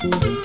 Thank you.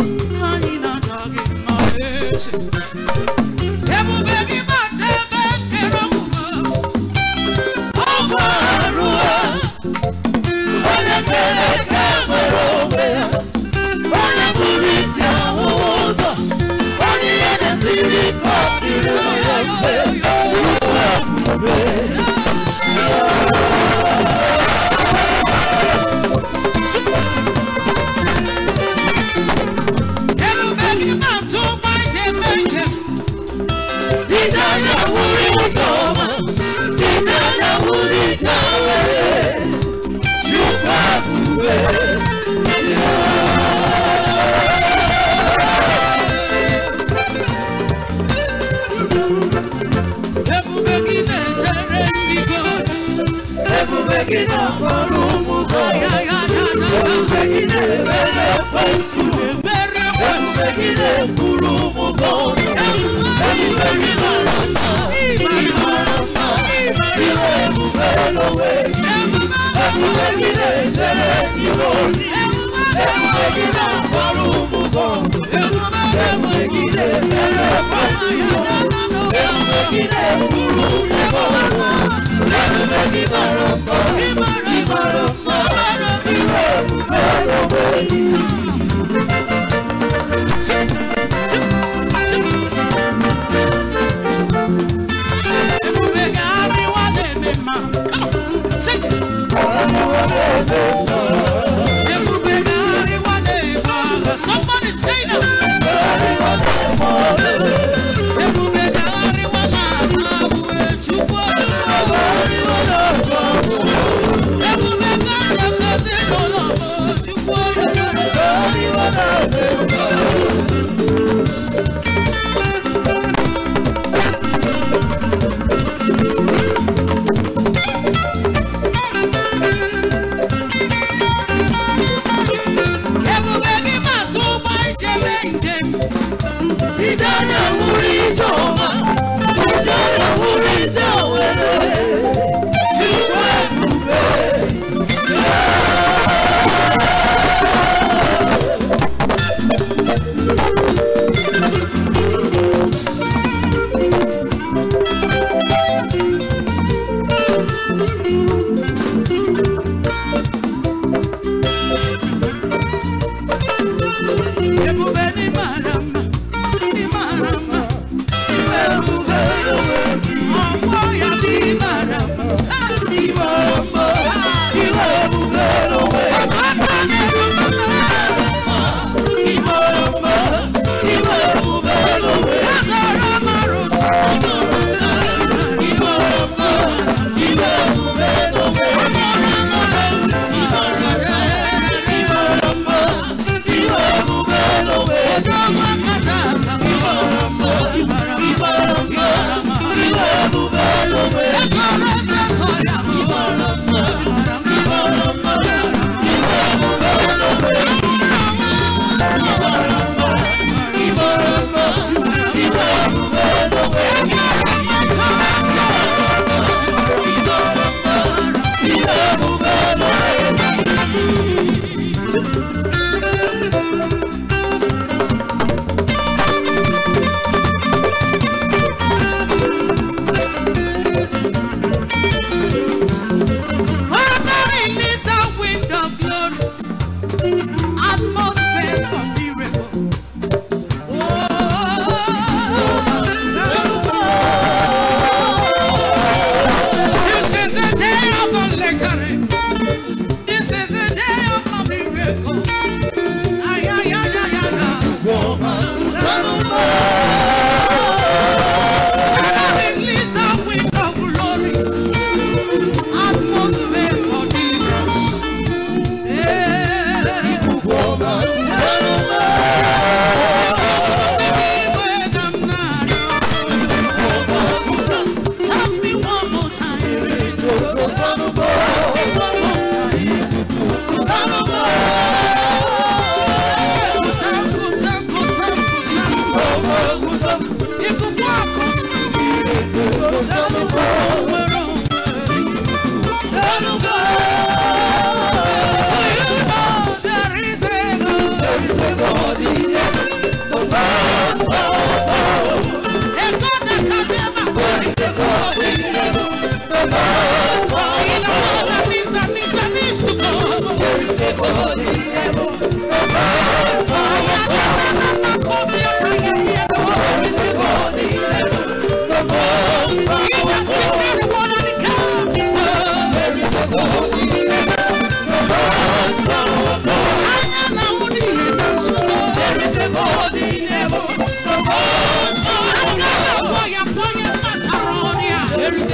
òwe yìí ẹ̀kúnlẹ̀ kí lè ṣẹlẹ̀ tí mo rí ẹ̀kúnlẹ̀ kí lè fọ́rùn mú bọ̀ ẹ̀kúnlẹ̀ kí lè ṣẹlẹ̀ pàtí mo ẹ̀kúnlẹ̀ kí lè kúrú lẹ́kọ̀ọ́ ẹ̀kúnlẹ̀ kí lè rọ̀ pọ̀ ìmọ̀ràn ìmọ̀ràn ìwé ẹ̀kúnlẹ̀ òwe yìí.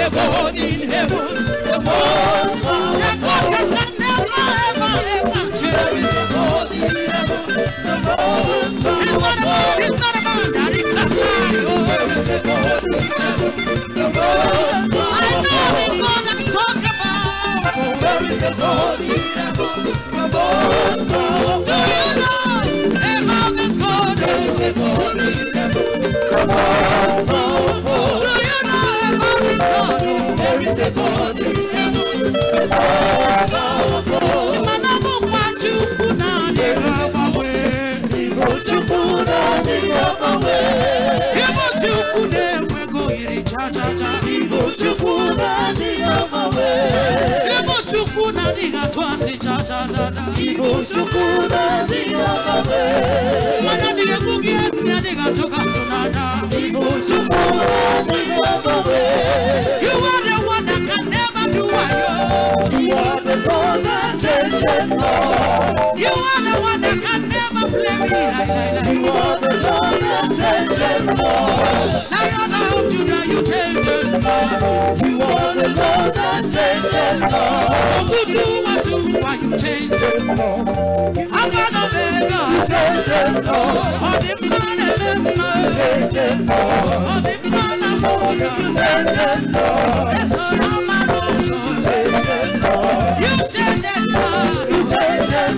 the God in heaven, the most high. The God can never, ever, ever. Cherish the God in heaven, the most high. And what about It's Not about that. It's not mine. Cherish the God in heaven, the most high. I know the God I'm talking about. So where is the God in heaven, the most high? Do you know about this God? Where is the God in heaven, the most high? mana ndị blame, Lord. You are the one that can never blame me. You are the Lord that can blame, Lord. Lion of Judah, you take the Lord. You are the Lord that can blame, Lord. Ogu Watu, why you change the Lord? Alpha and Omega, you take the Lord. All the man and the man, you take the Lord. man and the man, you take the Lord.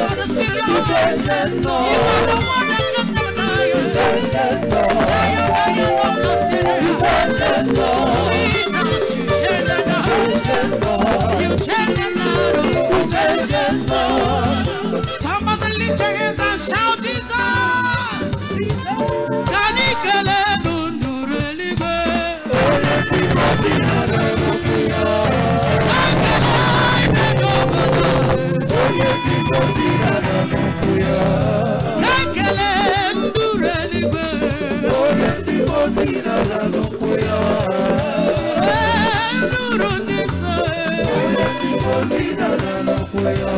are the Savior. You are the one that can never die. You lift your hands and shout Jesus. Jesus. así no, no, no puedo.